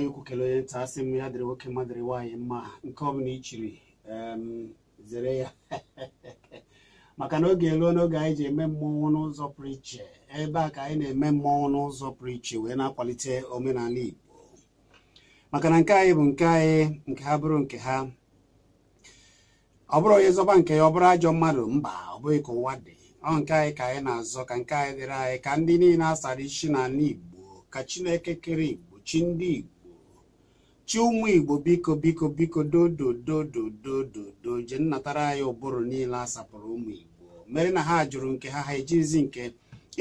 onye ukwu onye nta asị m ya dịrị nwoke mmadụ dịrị nwaanyị mma nke ọbụla ichiri zere ya maka na oge eruo n'oge anyị ji eme mmọnwụ n'ụzọ pụrụ iche ebe a ka anyị na-eme mmọnwụ n'ụzọ pụrụ iche wee na-akwalite omenala Igbo maka na nke anyị bụ nke anyị nke ha bụrụ nke ha ọ bụrụ onye zọba nke ya ọ bụrụ ajọ mmadụ mba ọ bụghị ka ụwa dị ọ nke anyị ka anyị na-azọ ka nke anyị dịrị anyị ka ndị niile asara isi n'ala Igbo ka Chineke kere Igbo chi ndị Igbo chi ụmụ igbo biko biko biko do je nnatara anyị ụbụrụ niile a sapụrụ ụmụ igbo mere na ha jụrụ nke ha ha ejizi nke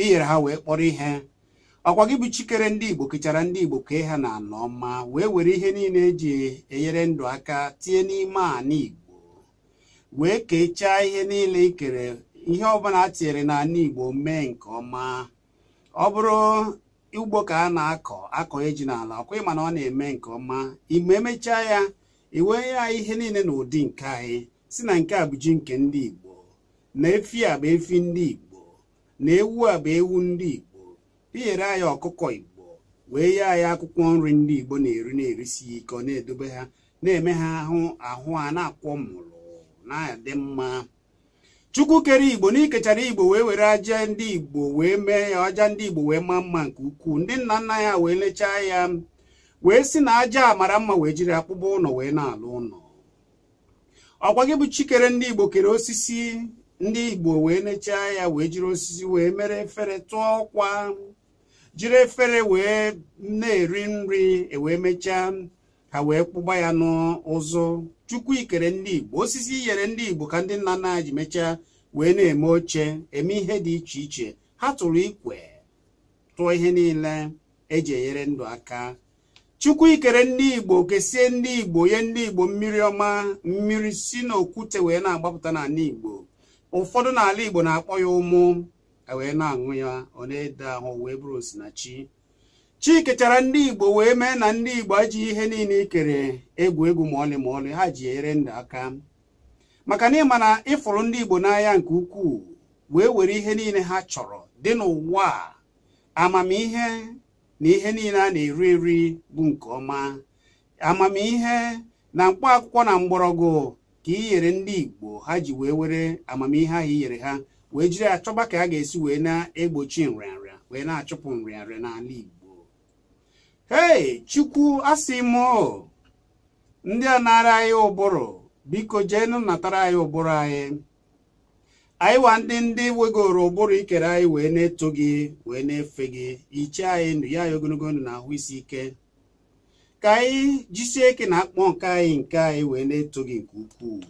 inyere ha wee kpọrọ ihe ọkwa gị bụ chikere ndị igbo kechara ndị igbo kee ha na anọ ọma wee were ihe niile eji enyere ndụ aka tinye n'ime ana igbo wee kechaa ihe niile ikere ihe ọbụla a tinyere na igbo mee nke ọma ọ bụrụ ugbo ka a na-akọ akọ eji n'ala ọkwa ịma na ọ na-eme nke ọma ime emechaa ya iwee ya ihe niile na ụdị nke anyị si na nke a bụ ji nke ndị Igbo na efi a bụ efi ndị Igbo na ewu a bụ ewu ndị Igbo pinyere anyị ọkụkọ Igbo wee ya anyị akwụkwọ nri ndị Igbo na-eri na-erisi ike ọ na-edobe ha na-eme ha ahụ ahụ a na-akwọ mụrụ na-adị mma chukwu kere igbo na ikechara igbo wee were aja ndị igbo wee mee ya aja ndị igbo wee maa mma nke ukwuu ndị nna nna ya wee lechaa ya wee si na aja a mara mma wee jiri akpụkpọ ụlọ wee na-alụ ụlọ ọkwa gị bụ chikere ndị igbo kere osisi ndị igbo wee lechaa ya wee jiri osisi wee mere efere tụọ ọkwa jiri efere wee na-eri nri ewee mechaa ha wee kpụgba ya n'ụzụ chukwu ikere ndị igbo osisi iyere ndị igbo ka ndị nna nna ji mechaa wee na-eme oche eme ihe dị iche iche ha tụrụ ikwe tụọ ihe niile eji enyere ndụ aka chukwu ikere ndị igbo kesie ndị igbo onye ndị igbo mmiri ọma mmiri si n'okwute wee na-agbapụta n'ala igbo ụfọdụ n'ala igbo na-akpọ ya ụmụ wee na-aṅụ ya ọ na-ede ahụ wee bụrụ osinachi chike chara ndị igbo wee mee na ndị igbo ajị ihe niile ikere egwu egwu ma ọlị ma ọlị ha ji ere ndụ aka maka na ịma na ịfụrụ ndị igbo n'anya nke ukwuu wee were ihe niile ha chọrọ dị n'ụwa amamihe na ihe niile a na-eri eri bụ nke ọma amamihe na mkpaakwụkwọ akwụkwọ na mgbọrọgwụ ka inyere ndị igbo ha ji wee were amamihe ahụ inyere ha wee jiri achọba ka a ga-esi wee na-egbochi nrịanrịa wee na-achụpụ nrịanrịa n'ala igbo hei chukwu asị m o ndị a nara anyị ụbụrụ biko jeenụ natara anyị ụbụrụ anyị anyị wa ndị ndị wegoro ụbụrụ ikere anyị wee na-eto gị wee na-efe gị iche anyị ndụ ya anyị ogologo ndụ na ahụ isi ike ka anyị jisie ike na akpọ nke anyị nke anyị wee na-eto gị nke ukwuu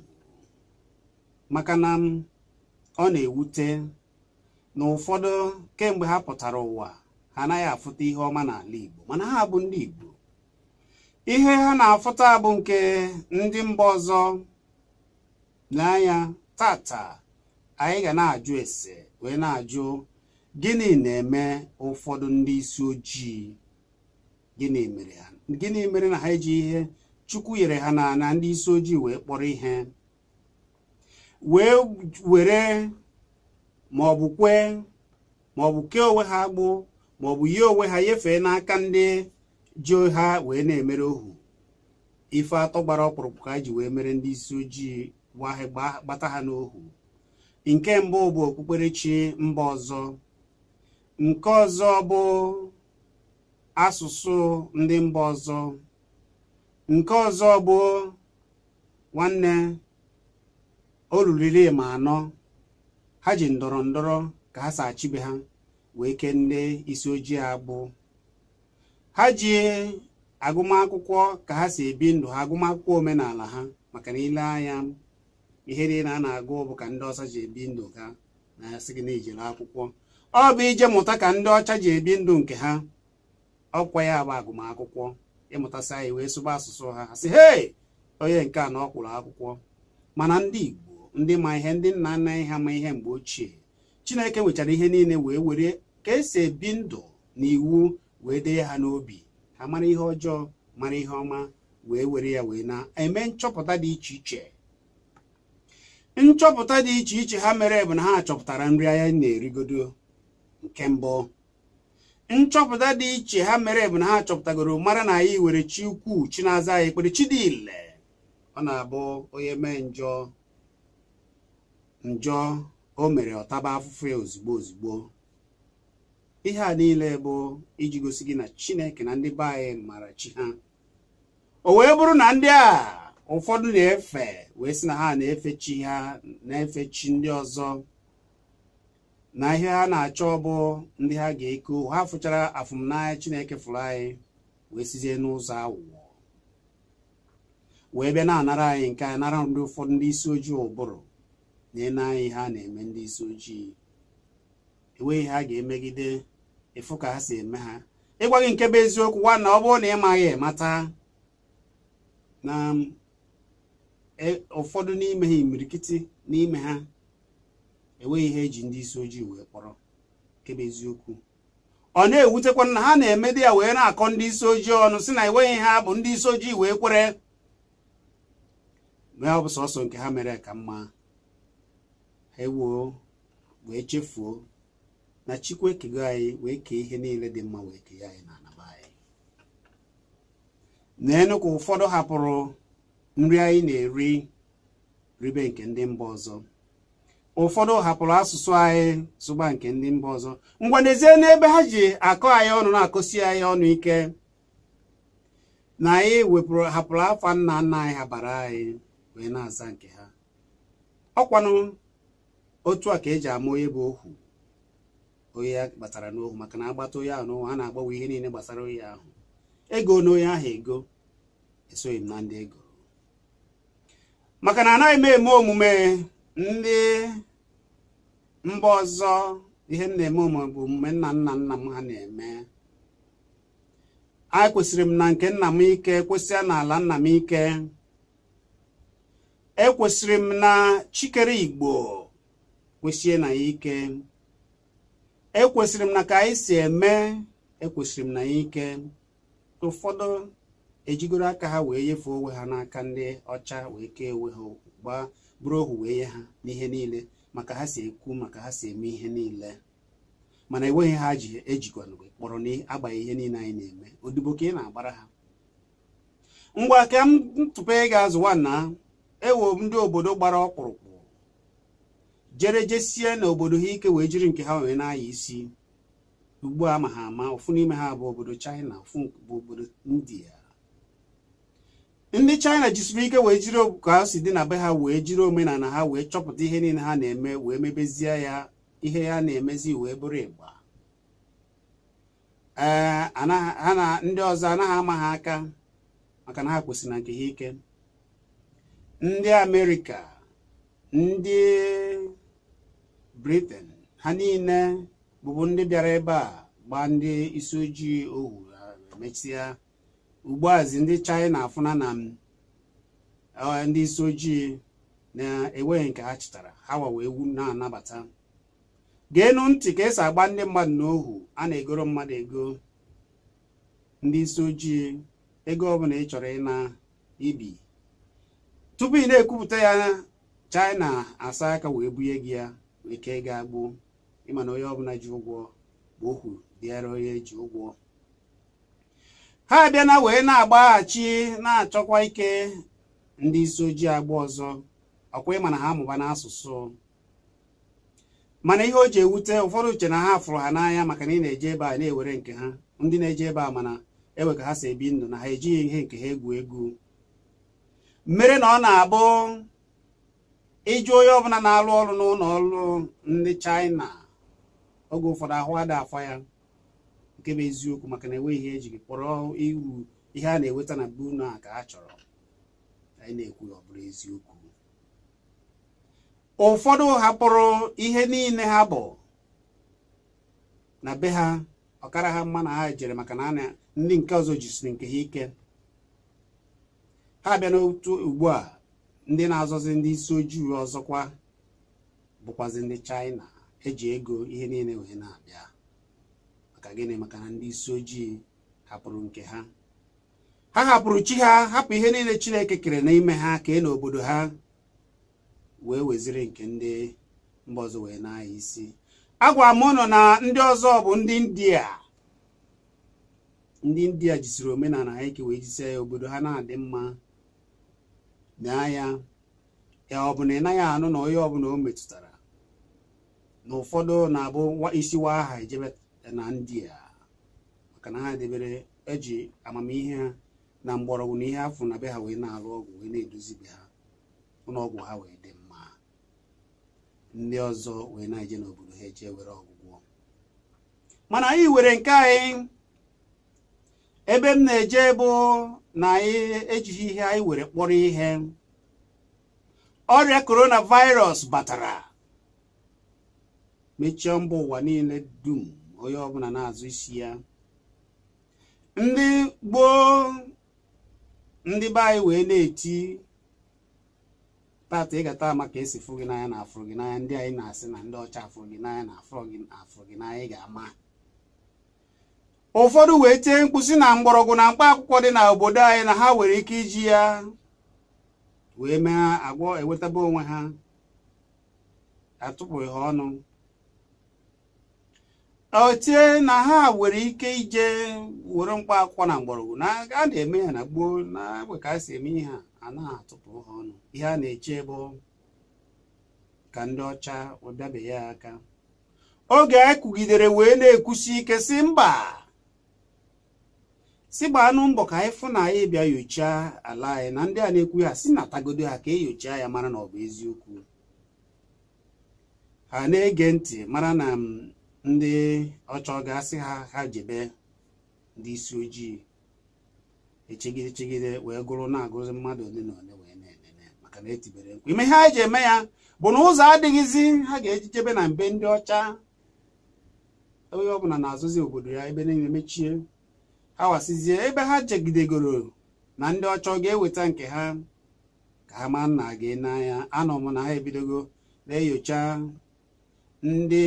maka na ọ na-ewute na ụfọdụ kemgbe ha pụtara ụwa ha anaghị afụta ihe ọma n'ala Igbo mana ha bụ ndị Igbo ihe ha na-afụta bụ nke ndị mba ọzọ n'anya tata anyị ga na-ajụ ese wee na-ajụ gịnị na-eme ụfọdụ ndị isi ojii gịnị mere ha gịnị mere na ha eji ihe chukwu nyere ha na na ndị isi ojii wee kpọrọ ihe wee were ma kwee kee onwe ha agbụ bụ yi onwe ha nyefee n'aka ndị ji ha wee na-emere ohu ife atọ gbara ọkpụrụkpụ ka ji wee mere ndị isi ojii gbata ha n'ohu nke mbụ bụ okpukperechi mba ọzọ nke ọzọ bụ asụsụ ndị mba ọzọ nke ọzọ bụ nwanne o ma anọ ha ji ndọrọ ndọrọ ka ha si achibe ha wee kenne isi ojii agbụ ha ji agụmakwụkwọ ka ha si ebi ndụ ha agụmakwụkwọ omenala ha maka na ile anya ihe niile a na-agụ bụ ka ndị ọcha ji ebi ndụ ha na asị gị na ijere akwụkwọ ọ bụ ije mụta ka ndị ọcha ji ebi ndụ nke ha ọkwa ya bụ agụmakwụkwọ ịmụtasị anyị wee sụba asụsụ ha ha sị hei onye nke a na ọ kwụrụ akwụkwọ mana ndị Igbo ndị ma ihe ndị nna nna ha ma ihe mgbe ochie Chineke nwechara ihe niile wee were ka esi ebi ndụ na iwu wee dee ha n'obi ha mara ihe ọjọọ mara ihe ọma wee were ya wee na-eme nchọpụta dị iche iche nchọpụta dị iche iche ha mere bụ na ha chọpụtara nri anya na-erigodo nke mbụ nchọpụta dị iche ha mere bụ na ha chọpụtagoro mara na anyị were chi ukwu chi na-aza anyị ekpere chi dị ile ọ na-abụ onye mee njọ njọ o mere ọtaba afụfụ ya ozugbo ozugbo ihe a niile bụ iji gosi gị na chineke na ndị be anyị mara chi ha o wee bụrụ na ndị a ụfọdụ na-efe wee sị na ha na-efe chi ha na-efe chi ndị ọzọ na ihe ha na-achọ bụ ndị ha ga-eko ha fụchara afụmnanya chineke fụrụ anyị wee sizie n'ụzọ awụọ wee bịa na-anara anyị nke a nara ndị ụfọdụ ndị isi ojii ụbụrụ na-ene anyị ha na-eme ndị isi ojii enweghị ha ga-emegide efu ka ha si eme ha ịgwa gị nke bụ eziokwu nwa na ọ bụrụ na ị maghị mata na um, e, ụfọdụ n'ime ha imirikiti n'ime ha enweghị ihe eji ndị isi ojii wee kpọrọ nke bụ eziokwu ọ na-ewutekwa na ha na eme di ya wee na-akọ ndị isi ojii ọnụ si na enweghị ha bụ ndị isi ojii wee kwere mee ọ bụ sọsọ nke ha mere ka mma ha ewuo wee chefuo na chukwu ekego anyị wee kee ihe niile dị mma wee kee anyị na anaba anyị naenu ka ụfọdụ hapụrụ nri anyị na-eri ribe nke ndị mba ọzọ ụfọdụ hapụrụ asụsụ anyị sụgba nke ndị mba ọzọ ngwa n'ebe ha ji akọ anyị ọnụ na akụsi anyị ọnụ ike na anyị wepụrụ hapụrụ afa nna nna anyị ha bara anyị wee na-aza nke ha ọkwanụ otu a ka eji ama onye bụ ohu onye ya gbatara n'ohu maka na agbata onye ahụ n'ohu a na-agbanwe ihe niile gbasara onye ahụ ego na onye ahụ ego esoghị m na ndị ego maka na anaghị m eme omume ndị mba ọzọ ihe m na-eme omume bụ omume nna nna nna m ha na-eme a kwesịrị m na nke nna m ike kwesịa n'ala nna m ike ekwesịrị m na chikere igbo kwesie na ya ike ekwesịrị m na ka anyị si eme ekwesịrị m na ya ike ụfọdụ ejigoro aka ha wee nyefee onwe ha n'aka ndị ọcha wee kee onwe ha gbaa bụrụ ohu wee nye ha n'ihe niile maka ha si ekwu maka ha si eme ihe niile mana enweghị ha ji ejikwana kpọrọ na n'agbanyeghị ihe niile anyị na-eme odibo ka ị na-agbara ha ngwa ka m tụpe ga azụwa na ewo ndị obodo gbara ọkpụrụkpụ jere jesie na obodo ha ike wee jiri nke ha wee na-aya isi ugbu a ma ha ama ofu n'ime ha bụ obodo China ofu bụ obodo India ndị China jisiri ike wee jiri ka ha si dị na be ha wee jiri omenala ha wee chọpụta ihe niile ha na-eme wee mebezie ya ihe ya na-emezi wee bụrụ ịgba ee ha na ndị ọzọ anaghị ama ha aka maka na ha kwesịrị na nke ha ike ndị Amerịka ndị briten ha niile bụbu ndị bịara ebe a gbaa ndị isi ojii ohu mechia ugbuazi ndị China afụna na e, ndị isi ojii na-enweghị nke ha chịtara ha wawa egwu na-anabata geenụ ntị ka esi agba ndị mmadụ n'ohu a na-egoro mmadụ ego ndị isi ojii ego ọbụla ị chọrọ ịna ibi tupu ị na-ekwupụta ya China asa aka wee bunye gị ya ike ga-agbu ịma na onye ọbụla ji ụgwọ bụ okwu bịara onye ji ụgwọ ha bịa na wee na-agbaghachi na-achọkwa ike ndị isi ojii agba ọzọ ọkwa ịma na ha amụba n'asụsụ mana ihe o ji ewute ụfọdụ uche na ha fụrụ ha n'anya maka na ị na-eje ebe a na-ewere nke ha ndị na-eje ebe a mana ewe ka ha si ebi ndụ na ha ejighị ihe nke ha egwu egwu mmere na ọ na-abụ ịjụ onye ọbụla na-alụ ọrụ n'ụlọ ọrụ ndị China oge ụfọdụ ahụ ada afọ ya nke bụ eziokwu maka na enweghị ihe ejiri kpọrọ iru ihe a na-enweta na bunu a ka ha chọrọ anyị na-ekwu ọ bụrụ eziokwu ụfọdụ hapụrụ ihe niile ha bụ na be ha ọkara ha mma na ha jere maka na ndị nke ọzọ jisiri nke ha ike ha bịa n'otu ugbu a ndị na-azọzi ndị isi ojii ọzọkwa bụkwazi ndị China eji ego ihe niile wee na-abịa maka gịnị maka na ndị isi ojii hapụrụ nke ha ha hapụrụ chi ha hapụ ihe niile Chineke kere n'ime ha kee n'obodo ha wee weziri nke ndị mba ọzọ wee na-anya isi agwa m ụnụ na ndị ọzọ bụ ndị India ndị India jisiri omenala ha wee jisi ya obodo ha na-adị mma naa ya ya ọ bụ na ị naghị anụ na onye ọbụla o metụtara na ụfọdụ na-abụ isiwa aha ejebe na ndị a maka na ha debere eji amamihe na mgbọrọgwụ na ihe afọ na be ha wee na-alụ ọgwụ wee na be ha ụlọọgwụ ha wee dị mma ndị ọzọ wee na-eje n'obodo ha eje were ọgwụgwọ mana anyị were nke anyị ebe m na-eje bụ na anyị ihe anyị were kpọrọ ihe ọrịa coronavirus batara mechie mba ụwa niile dum onye ọbụla na-azụ isi ya ndị gboo ndị be anyị wee na-eti tata ama ka esi fụ gị n'anya na afụ gị n'anya ndị anyị na-asị na ndị ọcha afụrụ gị n'anya na afụrụ gị n'anya ị ga-ama ụfọdụ wee tie mkpụsị na mgbọrọgwụ na mkpa akwụkwọ dị na obodo anyị na ha nwere ike iji ya wee mee agwọ enwetaba onwe ha atụpụghị ha ọnụ otie na ha nwere ike ije were mkpa akwụkwọ na mgbọrọgwụ na a na-eme ya na gboo na egbe ka a si eme ihe a anaghị atụpụ ha ọnụ ihe a na-eche bụ ka ndị ọcha ụbịabeghị ya aka oge anyị e kụgidere wee na-ekwusi ike si mba si gbaanụ mbọ ka anyị fụ na anyị bịa yochaa ala anyị na ndị a na-ekwu ha si na tagodo ha ka enyochaa ya mara na ọ bụ eziokwu ha na-ege ntị mara na ndị ọchọ ga-asị ha ha jebe ndị isi ojii echegide chegide wee gụrụ na-agụzi mmadụ ole na ole wee na-enene maka na etibere nkwa ime ihe anyị ji eme ya bụ na ụzọ adịghịzi ha ga-ejijebe na mbe ndị ọcha onye ọbụla na-azụzi obodo ya ebe niile mechie awasizie ebe ha jegidegoro na ndị ọchọ ga-eweta nke ha ka ha ma nna gị n'anya anọ m na ha ebidogo na-enyocha ndị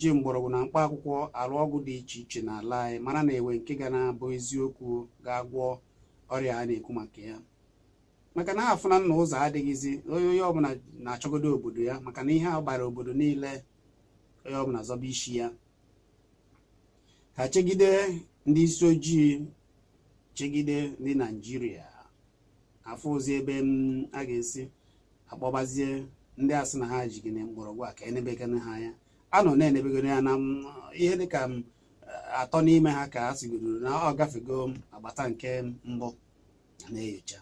ji mgbọrọgwụ na mkpa akwụkwọ alụ ọgwụ dị iche iche n'ala anyị mara na enwe nke ga na-abụ eziokwu ga-agwọ ọrịa a na-ekwu maka ya maka na ha afụna nna ụzọ adịghịzi onye onye ọbụla na-achọgodo obodo ya maka na ihe a obodo niile onye ọbụla zọba isi ya ha chegide ndị isi ojii chegide ndị naijiria afọ ozi ebe a ga-esi akpọbazie ndị asị na ha ji gịnị mgbọrọgwụ a ka enebegana ha anya a nọ na-enebegoro ya na ihe dịka atọ n'ime ha ka a sigoro na ọ gafego agbata nke mbụ na-enyocha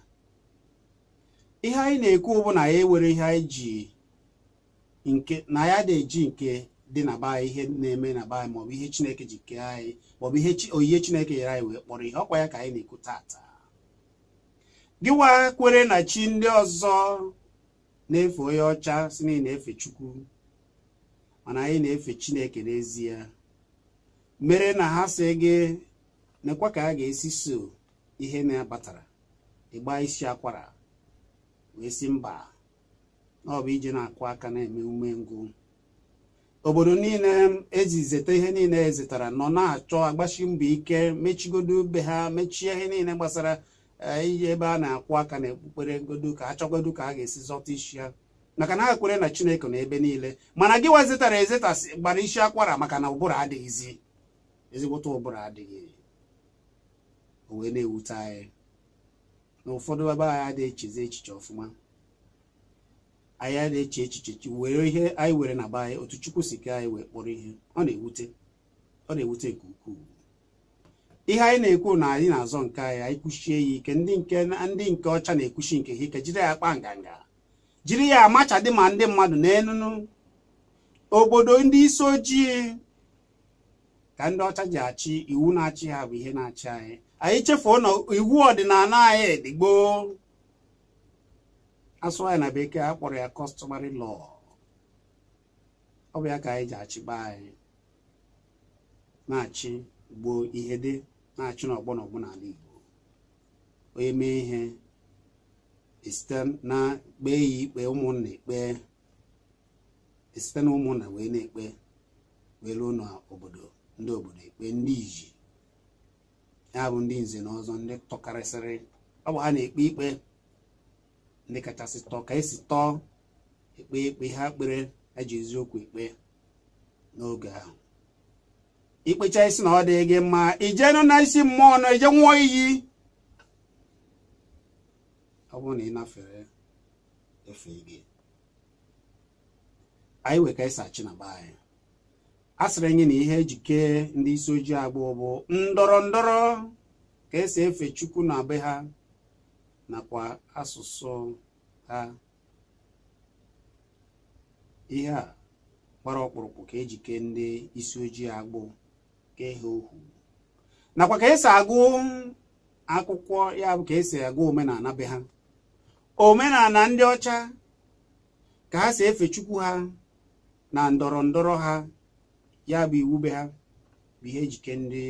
ihe anyị na-ekwu bụ na ya ewere ihe anyị ji nke na ya dị eji nke dị na be ihe na-eme na be maọbụ ihe chineke ji kee anyị maọbụ ihe oyihe chineke nyere anyị wee kpọrọ ihe ọkwa ya ka anyị na-ekwu taata gịwa kwere na chi ndị ọzọ na-efe onye ọcha si na na-efe chukwu mana anyị na-efe chineke n'ezie mere na ha si gị nekwa ka a ga-esi so ihe na-abatara ịgba isi akwara wee si mba ọ bụ ije na-akụ aka na-eme ume ngụ obodo niile zeta ihe niile zetara nọ na-achọ agbachi mbọ ike mechigodo be ha mechie ihe niile gbasara eh, iyi ebe a na-akwụ aka na ekpukpere godo ka a ka a ga-esi zọta isi ha maka na ha kwere na chineke na ebe niile mana gị zetara ezeta gbara isi akwara maka na ụbụrụ adịghịzi ezigbota ụbụrụ adịghị o wee na-ewute anyị na ụfọdụ ebe anyị adịghị echezi echiche ọfụma anyị na-eche echiche were ihe anyị were na be otu chukwu si ke anyị wee kpọrọ ihe ọ na-ewute nke ukwuu ihe anyị na-ekwu na anyị na-azọ nke anyị anyị kwuchie ya ike ndị nke ndị nke ọcha na-ekwuchi nke ha ike jiri ya kpa nganga jiri ya amacha dị ma ndị mmadụ na-enunu obodo ndị isi ojii ka ndị ọcha ji achị iwu na-achị ha bụ ihe na-achị anyị anyị chefuo na iwu ọdịnala anyị dịgboo Asụ anyị na bekee akpọrọ ya kọstọmarị lọọ. ọ bụ ya ka anyị ji achịba anyị na-achị gboo ihe dị na-achị n'ọgbọ n'ọgbọ n'ala Igbo onye mee ihe e site na kpee ya ikpe ụmụnna ekpe esite na ụmụnna wee na-ekpe wee ruo n'obodo ndị obodo ekpe ndị iji ya bụ ndị nze na ọzọ ndị tọkarịsịrị ọ bụ ha na-ekpe ikpe ndị kachasị tọọ ka esi tọọ ekpe ekpe ha kpere eji eziokwu ekpe n'oge ahụ ikpecha isi na ọ dị gị mma ijenụ na isi mmụọ na-eje nwụọ iyi ọ bụrụ na ị nafere efe gị anyị wee ka ịsachi e na be anyị a sịrị anyị na ihe ejike ndị isi ojii agbụ bụ ndọrọ ndọrọ ka esi efe chukwu na be ha nakwa asụsụ ha ihe a gbara ọkpụrụkpụ ka ejike ndị isi ojii agbụ ka ihe ohu nakwa ka esi agụ akwụkwọ ya bụ ka esi agụ omenala be ha omenala ndị ọcha ka ha si efe chukwu ha na ndọrọ ndọrọ ha ya bụ iwu be ha bụ ihe ejike ndị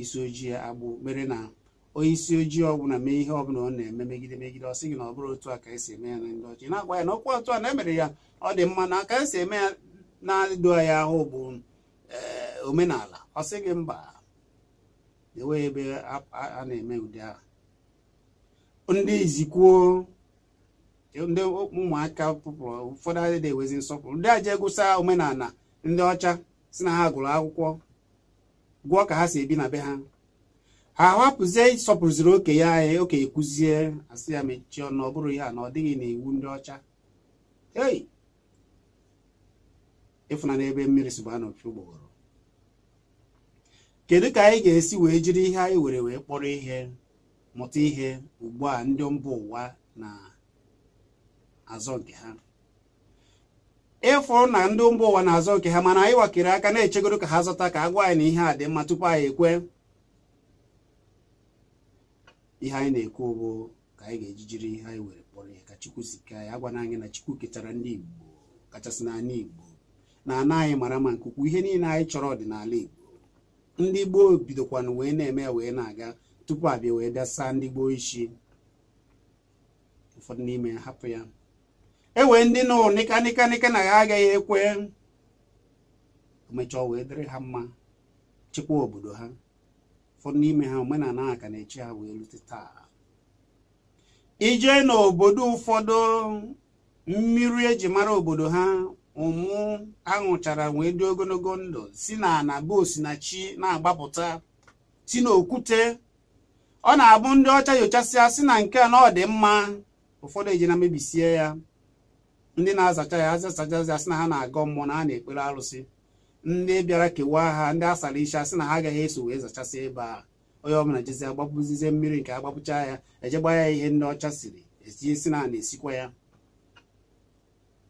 isi ojii agbụ mere na onye isi ojii ọbụla mee ihe ọbụla ọ na-eme megide megide ọ sị gị na ọ bụrụ otu a ka esi eme ya na ndị ọchị na-agwa ya na okwu otu a na-emere ya ọ dị mma na ka esi eme ya na-adụ ya ahụ bụ eh, omenala ọ sị gị mba enweghị ebe a na-eme ụdị ahụ ndị izikwuo ndị ụmụaka pụpụrụ ụfọdụ adịghị ewezi nsọpụrụ ndị aja egwusa omenala ndị ọcha si na ha gụrụ akwụkwọ gwụọ ka ha si ebi na be ha ha ahapụzie oke ya anyị e, oke kwụzie asị ya mechie ọnụ ọ bụrụ ihe na ọ dịghị n'iwu ndị ọcha ei ịfụnana n'ebe mmiri si gbaa n'opi kedu ka anyị ga-esi wee jiri ihe anyị were wee kpọrọ ihe mụta ihe ugbu a ndị mba ụwa na azọ nke ha ịfụ na ndị mba ụwa na-azọ nke ha mana anyị wakere aka na-echegoro ka ha zọta ka a anyị na ihe a dị mma tupu anyị ekwe ihe anyị na-ekwu bụ ka anyị ga-eji jiri ihe anyị were kpọrọ ihe ka chukwu si ka anyị agwana anyị na chukwu ketara ndị igbo kachasị n'ala igbo na ana anyị mara ma nke ukwu ihe niile anyị chọrọ ọdịnala igbo ndị gboo bidokwanụ wee na-eme wee na-aga tupu abịa wee bịa saa ndị gboo isi ụfọdụ n'ime hapụ ya e wee ndị nọ nika nika na ya agaghị ekwe emechaa wee dịrị ha mma chịkwa obodo ha ụfọdụ n'ime ha omenala a ka na-echi ha wee rute taa ijee n'obodo ụfọdụ mmiri eji mara obodo ha ụmụ aṅụchara wee dị ogologo ndụ si na ana bụ osinachi na-agbapụta si n'okwute ọ na-abụ ndị ọcha nyochasịa si na nke a na ọ dị mma ụfọdụ eji na mebisie ya ndị na-azacha ya azachachazi asị na ha na-agọ mmụọ na ha na-ekpere arụsị ndị bịara kewaa ha ndị asara icha asị na ha agaghị eso wee zachasị ebe a onye ọbụla jezi agbapụzizie mmiri nke agbapụcha ya eje gba ya ihe ndị ọcha siri etinye si na na-esikwa ya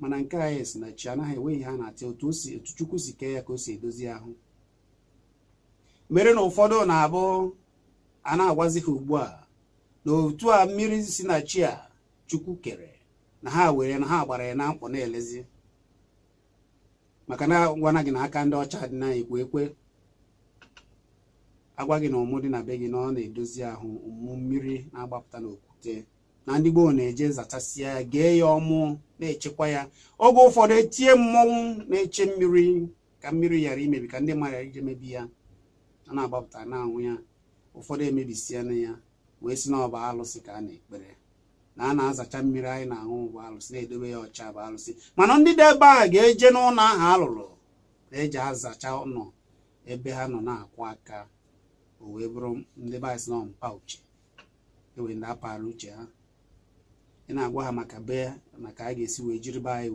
mana nke a esi na chi anaghị enweghị ha na-atị otu chukwu si kee ya ka o si edozi ahụ mere na ụfọdụ na-abụ a na-agwazi ha ugbu a na otu a mmiri si na chi a chukwu kere na ha were na ha gbara ya na mkpọ na-elezi maka na gwana gị na aka ndị ọcha dị na ekwe ekwe agwa gị na ụmụ dị na be gị na ọ na-edozi ahụ ụmụ mmiri na-agbapụta n'okwute na ndị gboo na-eje ya gee ya ọmụ na-echekwa ya oge ụfọdụ etie mmọnwụ na-eche mmiri ka mmiri ghara imebi ka ndị mmadụ ghara ije mebi ya a na-agbapụta na anwụ ya ụfọdụ emebisiana ya wee si na ọba alụsị ka a na-ekpere na a na-azacha mmiri anyị na-aṅụ bụ alụsị na-edobe ya ọcha bụ alụsị mana ndị dị ebe a ga-eje n'ụlọ ahụ alụrụ na-eji azacha ụlọ ebe ha nọ na-akwụ aka o wee bụrụ ndị baịs na mpa uche ewee ndị apara uche ha ị na-agwa ha maka be maka a ga-esi wee jiri be anyị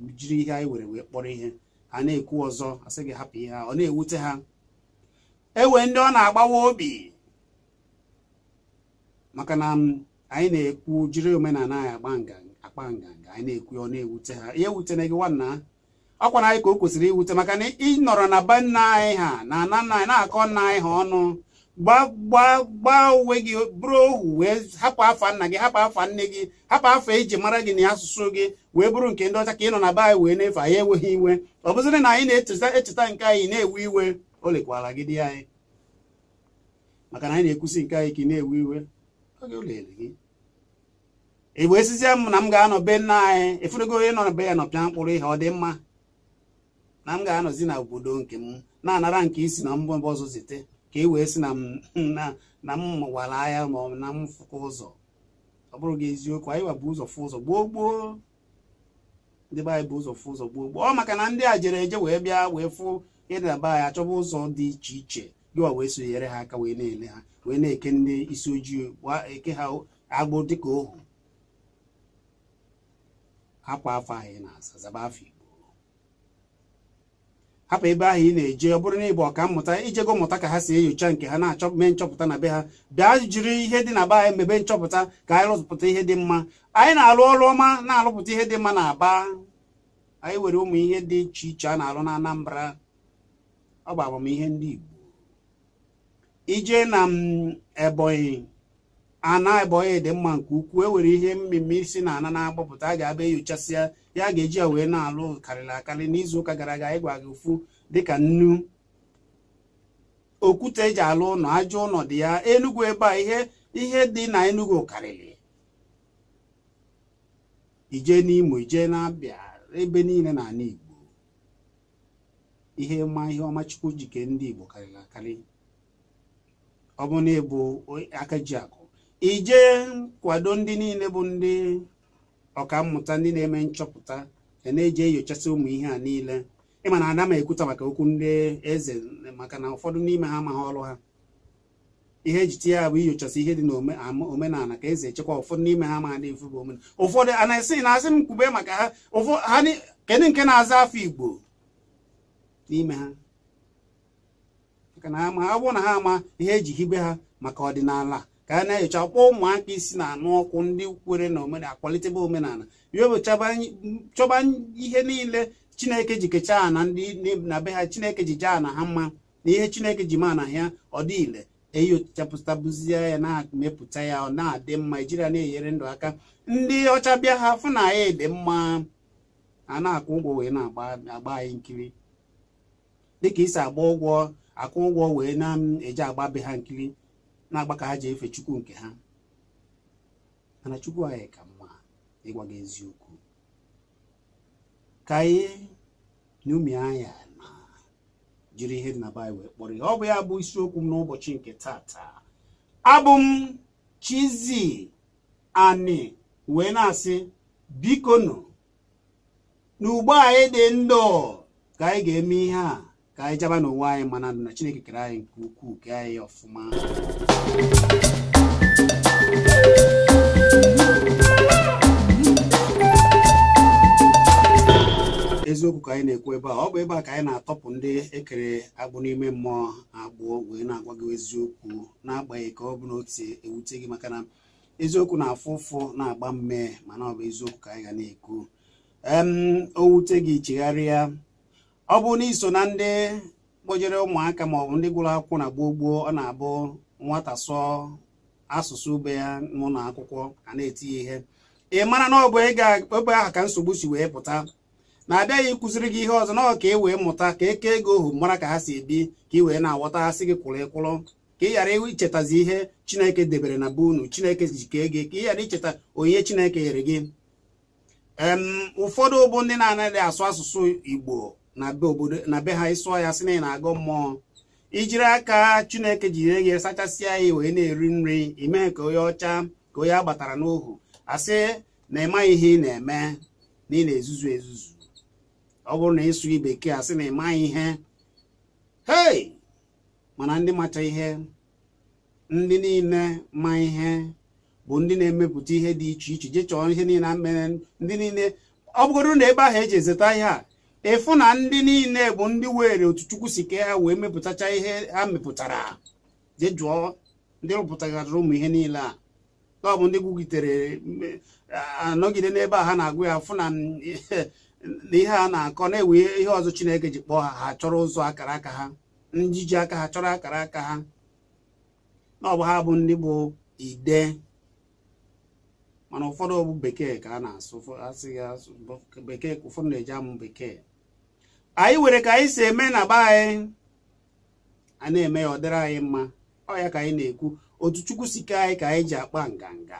wee jiri ihe anyị were wee kpọrọ ihe ha na-ekwu ọzọ sị gị hapụ ihe ha ọ na-ewute ha ewe ndị ọ na-agbawa obi maka na. anyị na-ekwu jiri omenala anyị agba nganga akpa nganga anyị na-ekwu ọ na-ewute ha ihe ewutena gị nwanna ọkwa na anyị ka o kwesịrị iwute maka na ị nọrọ na be nna anyị ha na ana nna anyị na-akọ nna anyị ha ọnụ gbaa uwe gị bụrụ ohu wee hapụ afa nna gị hapụ afa nne gị hapụ afa iji e mara gị na asụsụ gị wee bụrụ nke ndị ọcha ka ị nọ na be anyị wee na-efe anyị enweghị iwe ọ bụzịrị na anyị na-echeta nke anyị na-ewe iwe o lekwala gị di anyị maka na anyị na-ekwusi nke anyị ka ị na-ewe iwe gị i wee sizie m na m ga-anọ be nna anyị efurugo onye nọ be ya nọ mkpụrụ ihe ọ dị mma na m ga-anọzi na obodo nke m na-anara nke isi na mbọ ọzọ zite ka e wee sị na m mụwara ahịa ma ọ na m fụkwa ụzọ ọ bụrụ gị eziokwu anyị wa bụ ụzọ fụ ụzọ gboo gboo ndị be anyị bụ ụzọ fụ ụzọ gboo gboo ọ maka na ndị a jere eje wee bịa wee fụ ịdaba anyị achọba ụzọ dị iche iche gịwa wee sonyere ha aka wee na-ele ha wee na-eke ndị isi ojii eke ha agbụ dịka ohu hapụ afọ ahụ ị na asa zaba afọ igbo hapụ ebe ahụ ị na-eje ọ bụrụ na ịbụ ọka mmụta ijego mmụta ka ha si enyocha nke ha na-achọ mee nchọpụta na be ha bịa jiri ihe dị na be anyị mebe nchọpụta ka anyị rụpụta ihe dị mma anyị na-alụ ọrụ ọma na-alụpụta ihe dị mma na aba anyị were ụmụ ihe dị iche iche a na-alụ na Anambra ọ bụ amamihe ndị Igbo ije na mm, Ebonyi ana ebonyi dị mma nke ukwuu e nwere ihe mmemme isi na ana na-agbapụta a ga-abịa enyochasịa ya ga-eji ya wee na-alụ karịrị akarị n'izu ụka gara aga ịgwa gị ofu dịka nnu okwute eji alụ ụlọ ajọ ụlọ dị ya enugwu ebe a ihe ihe dị na enugwu karịrị ije n'imo ije na-abịa ebe niile ala igbo ihe ma ihe ọmachukwu jike ndị igbo karịrị akarị ọ bụ na ịbụ akụ ije kwado ndị niile bụ ndị mmụta ndị na-eme nchọpụta na eji enyochasị ụmụ ihe a niile ịma na ada m ekwuta maka okwu ndị eze maka na ụfọdụ n'ime ha amaghị ọrụ ha ihe ejite ya bụ inyochasị ihe dị n'omenala ka eze echekwa ụfọdụ n'ime ha amaghị efu bụ omenala ụfọdụ a na-esi na asị m kwube maka ha kedu nke na-aza afọ igbo n'ime ha maka na ha ama ọ bụrụ na ha ama ihe eji hibe ha maka ọdịnala ka a na-enyocha kpọọ ụmụaka isi na-anụ ọkụ ndị kwere na omenala kwalitebe omenala ya chọba ihe niile chineke ji kechaa na ndị na be ha chineke ji jee na ha mma na ihe chineke ji ma na ya ọ dị ya na-emepụta ya ọ na-adị mma ijiri na-enyere ndụ aka ndị ọcha bịa ha fụ na ya dị mma a na-akwụ ụgwọ wee na-agba anyị nkiri dịka isi agba ụgwọ akwụ ụgwọ wee na-eji agba be ha nkiri na-agba ka ha ji efe chukwu nke ha mana chukwu anyị ka mma ịgwa gị eziokwu ka anyị n'umi anya na jiri ihe dị na baịbụl wee kpọrọ ihe ọ bụ ya bụ isiokwu m n'ụbọchị nke taa abụ m Chizie Ani wee na-asị bikonu n'ugbo anyị dị ndụ ka anyị ga-eme ihe a ka anyị jaba n'onwe anyị mana na chineke kere anyị nke ukwuu kee anyị ọfụma eziokwu ka anyị na-ekwu ebe a ọ bụ ebe a ka anyị na-atọpụ ndị ekere agbụ n'ime mmụọ agbụọ wee na-agwa gị eziokwu n'agbanyeghị ka ọ bụ na ewute gị maka na eziokwu na-afụ ụfụ na-agba mme mana ọ bụ eziokwu ka anyị ga na-ekwu o wute gị chegharịa ọ bụrụ na iso na ndị kpojere ụmụaka maọbụ ndị gwụrụ akwụkwọ na gboo ọ na-abụ nwata sụọ asụsụ ube ya n'ụlọ akwụkwọ a na etinye ihe ị mara na ọbụ ebe aha ka nsogbu si wee pụta na-abịaghị ịkụziri gị ihe ọzọ na ọ ka e wee mụta ka eke ego ohu mara ka ha si ebi ka ị wee na-aghọta ha gị kwụrụ ịkwụrụ ka ị ghara ichetazi ihe chineke debere na be unu chineke ji kee gị ka ị ghara icheta onye chineke nyere gị ụfọdụ bụ ndị na-anaghị asụ asụsụ igbo na be obodo na be ha ịsụọ ya sị na ị na-agọ mmụọ ijiri aka chineke jiri gị e sachasịa ya wee na-eri nri imee ka onye ọcha ka onye agbatara n'ohu asị na ịmaghị ihe ị na-eme na ị na-ezuzu ezuzu ọ bụrụ na ịsụ bekee asị na ịma ihe hei mana ndị macha ihe ndị niile ma ihe bụ ndị na-emepụta ihe dị iche iche jee chọọ ihe niile na mmere ndị niile ọ bụgoro na ebe ahụ eji ezeta ihe a ịfụ na ndị niile bụ ndị were otu chukwu si ke ha wee mepụtacha ihe ha mepụtara je jụọ ndị rụpụtagharịrị ụmụ ihe niile a ọ bụ ndị gwugitere anọgide n'ebe a ha na-agụ ya fụ na ihe a na-akọ na-ewe ihe ọzọ chineke ji kpọọ ha ha chọrọ ụzọ akara aka ha njiji aka ha chọrọ akara aka ha na ọ bụ ha bụ ndị bụ ide mana ụfọdụ bụ bekee ka a na-asụ asị ya bekee ụfọdụ na-eji amụ bekee anyị were ka anyị si eme na be anyị a na-eme ya ọ dịrị anyị mma ọ ya ka anyị na-ekwu otu chukwu si ke anyị ka anyị ji akpa nganga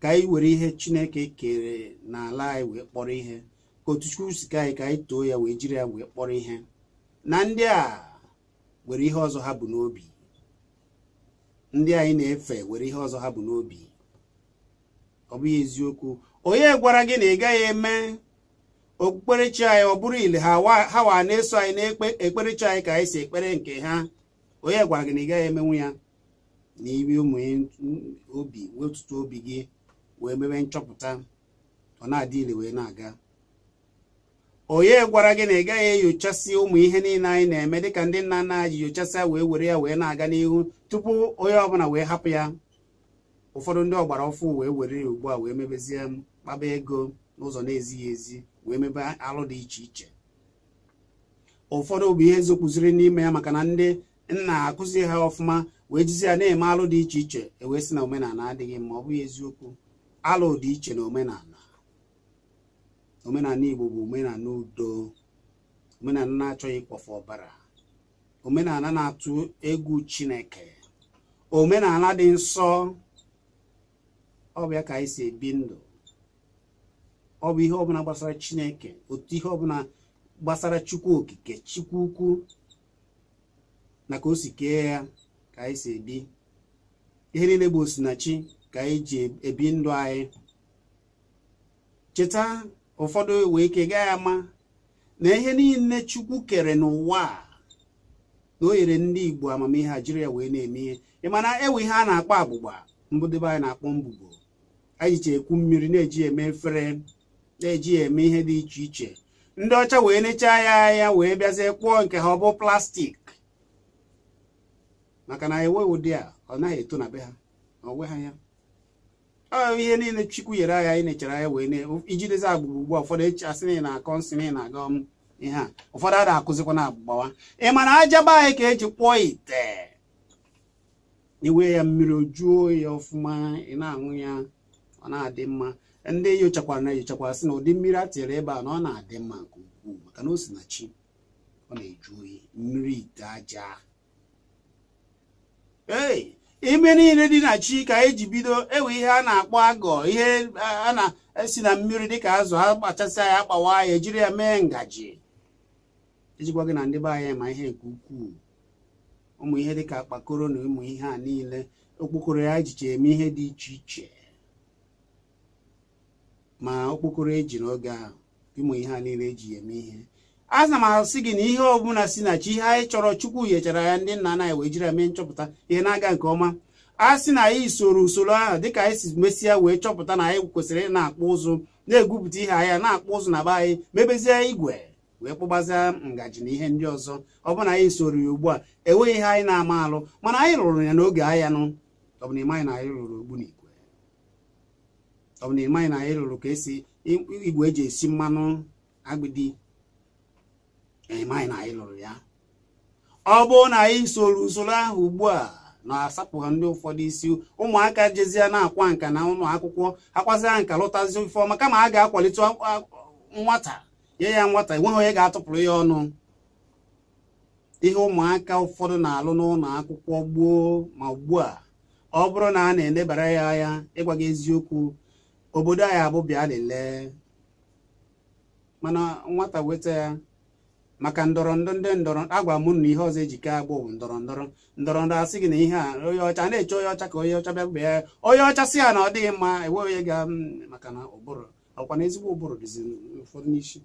ka anyị were ihe chineke kere n'ala anyị wee kpọrọ ihe ka otu chukwu si ke anyị ka anyị too ya wee jiri ya wee kpọrọ ihe na ndị a were ihe ọzọ ha bụ n'obi ndị anyị na-efe were ihe ọzọ ha bụ n'obi ọ bụghị eziokwu onye gwara gị na ị gaghị eme okpukperechi anyị ọ bụrụ ile ha ha wa na-eso anyị na-ekpe ekperechi anyị ka anyị si ekpere nke ha onye gwara gị na ị gaghị emenwu ya na iri ụmụnye obi wetutu obi gị wee mebe nchọpụta ọ na-adị ile wee na-aga onye gwara gị na ị gaghị enyochasị ụmụ ihe niile anyị na-eme dịka ndị nna nna ji nyochasịa wee were ya wee na-aga n'ihu tupu onye ọbụla wee hapụ ya ụfọdụ ndị ọgbara ọfụ wee were ya ugbu a wee mebezie kpaba ego n'ụzọ na-ezighị ezi wee mebe alụ dị iche iche ụfọdụ bụ ihe zokpụziri n'ime ya maka na ndị nna akụzi ha ọfụma wee jizi ya na-eme alụ dị iche iche ewee sị na omenala adịghị mma ọ bụghị eziokwu alụ dị iche na omenala omenala Igbo bụ omenala udo omenala na-achọghị ịkpọfe ọbara omenala na-atụ egwu Chineke omenala dị nsọ ọ bụ ya ka anyị si ebi ndụ ọ bụ ihe ọbụla gbasara chineke otu ihe ọbụla gbasara chukwu okike chukwu ukwu na ka o si kee ya ka anyị si ebi ihe niile bụ osinachi ka anyị ji ebi ndụ anyị cheta ụfọdụ wee ike ya ama na ihe niile chukwu kere n'ụwa na o nyere ndị igbo amamihe a jiri ya wee na-eme ihe ị mana ewe ihe a na-akpọ agbụgba mbụdebe anyị na-akpọ mbubo anyị ji ekwu mmiri na-eji eme efere na-eji eme ihe dị iche iche ndị ọcha wee nechaa ya ya wee bịazie kpụọ nke ha ọ bụ plastik maka na ewe ụdị a ọ naghị eto na be ha onwe ha ya ihe niile chukwu nyere agha anyị nechara ya wee ijidezi agbụrụ ugbu a ụfọdụ echi asị na akọ nsị na na-aga ihe a ụfọdụ a na-akụzikwa na agbụgbawa ị ma na aja be anyị ka eji kpụọ ite iwe ya mmiri ojuo ya ọfụma ị na-aṅụ ya ọ na-adị mma ndị nyochakwara na enyochakwara sị na ụdị mmiri a tinyere ebe a na ọ na-adị mma nke ukwuu maka na o si na chi ọ na-eju oyi mmiri ite aja ee ime niile dị na chi ka eji bido ewe ihe a na-akpọ agọ ihe a na-esi na mmiri dịka azụ a kpachasịa ya akpawa ya ejiri ya mee ngaji ejikwa gị na ndị be anyị ma ihe nke ukwuu ụmụ ihe dịka akpakoro na ụmụ ihe a niile okpokoro ya ejiche eme ihe dị iche iche ma okpokoro eji n'oge ahụ ịmụ ihe a niile eji eme ihe a m asị gị na ihe ọbụla si na chi ihe anyị chọrọ chukwu nyechara ya ndị nna anyị wee jiri eme nchọpụta ihe na-aga nke ọma a sị na anyị soro usoro ahụ dịka anyị si mesịa wee chọpụta na anyị kwesịrị ị na-akpụ ụzụ na-egwupụta ihe anya na-akpụ ụzụ na be anyị mebezie igwe wee kpụgbazia ngaji na ihe ndị ọzọ ọ bụrụ na anyị soro ya ugbu a enweghị ihe anyị na-ama alụ mana anyị rụrụ ya n'oge ahịa nụ ọ na ịmaghị na anyị rụrụ ogbunigwe ọ bụ na na anyị lụrụ ka esi igwe eji esi mmanụ agbidi ịmaghị na anyị lụrụ ya ọ bụrụ na anyị soro usoro ahụ ugbu a na-asapụghị ndị ụfọdụ isi ụmụaka jezie na-akwa nka na ụlọ akwụkwọ akwazia nka lụtazi ife ọma kama a ga-akwalite nwata nye ya nwata enweghị onye ga-atụpụrụ ya ọnụ ihe ụmụaka ụfọdụ na-alụ n'ụlọ akwụkwọ gboo ma ugbu a ọ bụrụ na a na-elebara ya anya ịgwa gị eziokwu obodo anyị abụ bịa lelee mana nwata weta ya maka ndọrọndọrọ ndị ndọrọ agwa m na ihe ọzọ ejike agbụ bụ ndọrọndọrọ ndọrọndọrọ asị gị na ihe a onye ọcha na-eche onye ọcha ka onye ọcha bịa bịa onye ọcha si ya na ọ dịghị mma enwe onye ga maka na ụbụrụ ọkwa na ezigbo ụbụrụ dịzi ụfọdụ n'isi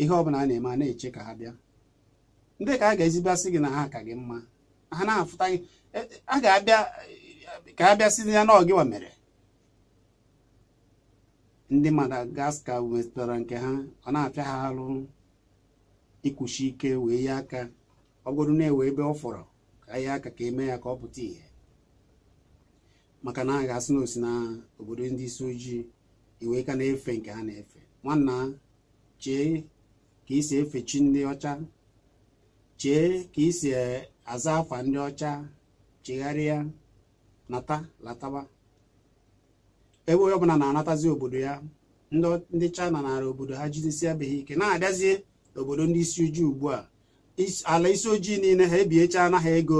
ihe ọbụla a na-eme a na-eche ka ha bịa ndị ka a ga asị gị na ha ka gị mma ha na-afụta gị e, e, a ga-abịa ka a ya na ọgịwa mere ndị Madagascar wetara nke ha ọ na-apịa ha arụ ikwuchi ike wee ya aka ọgụrụ na-ewe ebe ọ fọrọ ka ya aka ka eme ya ka ọ pụta ihe maka na a ga-asị na osi obodo ndị isi ojii iwe e ka na-efe nke ha na-efe nwanna chee ka isi efe chi ndị ọcha chee ka isi e, aza afa ndị ọcha chegharịa nata lataba ebe onye ọbụla na-anatazi obodo ya ndị China nara obodo ha jidesia beghị ike na-abịazie obodo ndị isi ojii ugbu a ala isi ojii niile ha ebiecha na ha ego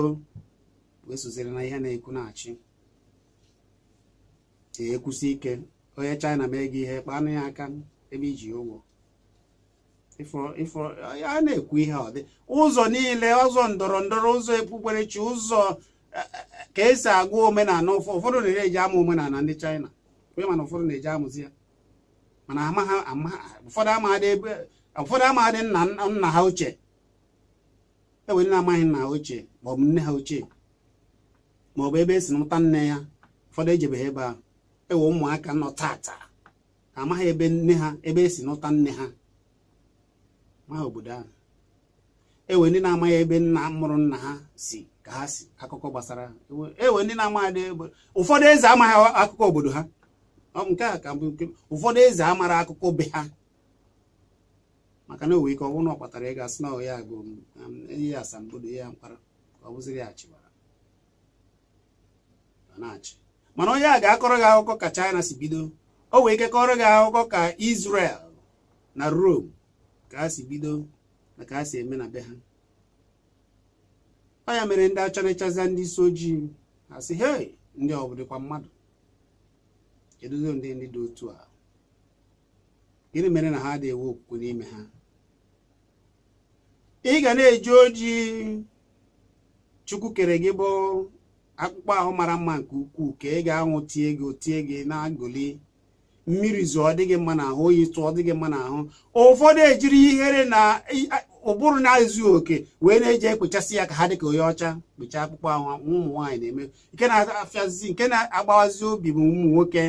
na ihe na-ekwu na-achị ekwusi ike onye China mee ego ihe kpanụ ya aka ebe iji ụgwọ a na-ekwu ihe ọ dị ụzọ niile ụzọ ndọrọ ndọrọ ụzọ ekpukperechi ụzọ e, e, e, ka esi agụ omenala ụfọdụ na-eji ama omenala ndị China onye mana ụfọdụ na eje amụzi ya mana ụfọdụ ebe ụfọdụ amaghadị nna nna ha ochie enwe ndị na-amaghị nna ha ochie maọbụ nne ha ochie maọbụ ebe esi mụta nne ya ụfọdụ ejebeghị ebe ahụ ewe ụmụaka nọ tata amaghị ebe nne ha ebe esi nụta nne ha maha obodo ahụ ewe ndị na-amaghị ebe nna mụrụ nna ha si ka ha si akụkọ gbasara ewe e ndị na-amaghị ụfọdụ eze amaghị akụkọ obodo ha nke a ka bụ ụfọdụ eze amara akụkọ be ha maka na o wee ike ọ bụrụ na ọ kpatara ịga sị na ya bụ um, ihe asambodo ya mkpara ọ bụziri ya chịwara na-achị mana onye a ga-akọrọ gị akụkọ ka China si bido o wee ike kọrọ gị akụkọ ka isrel na Rome ka ha si bido na ka ha si eme na be ha ọ ya mere ndị achọrịchaza ndị isi ojii ha si he ndị ọ bụ dịkwa mmadụ keduzi ndị ndị dị otu a gịnị mere na ha adịghị enwe okwukwe n'ime ha ị ga na-eji oji chukwu kere gị bụ akpụkpọ ahụ mara mma nke ukwuu ka ị ga-anwụ tie gị otie gị na-agụli mmiri zụọ ọ dịghị mma n'ahụ oyi tụọ ọ dịghị mma n'ahụ ụfọdụ ejiri ihere na ụbụrụ na-ezughị oke wee na-eji ekpechasị ya ka ha dị ka onye ọcha kpechaa akpụkpọ ahụ ụmụ nwaanyị na-eme nke na-afịazi nke na-agbawazi obi bụ ụmụ nwoke